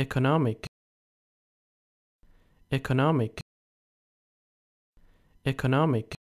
economic economic economic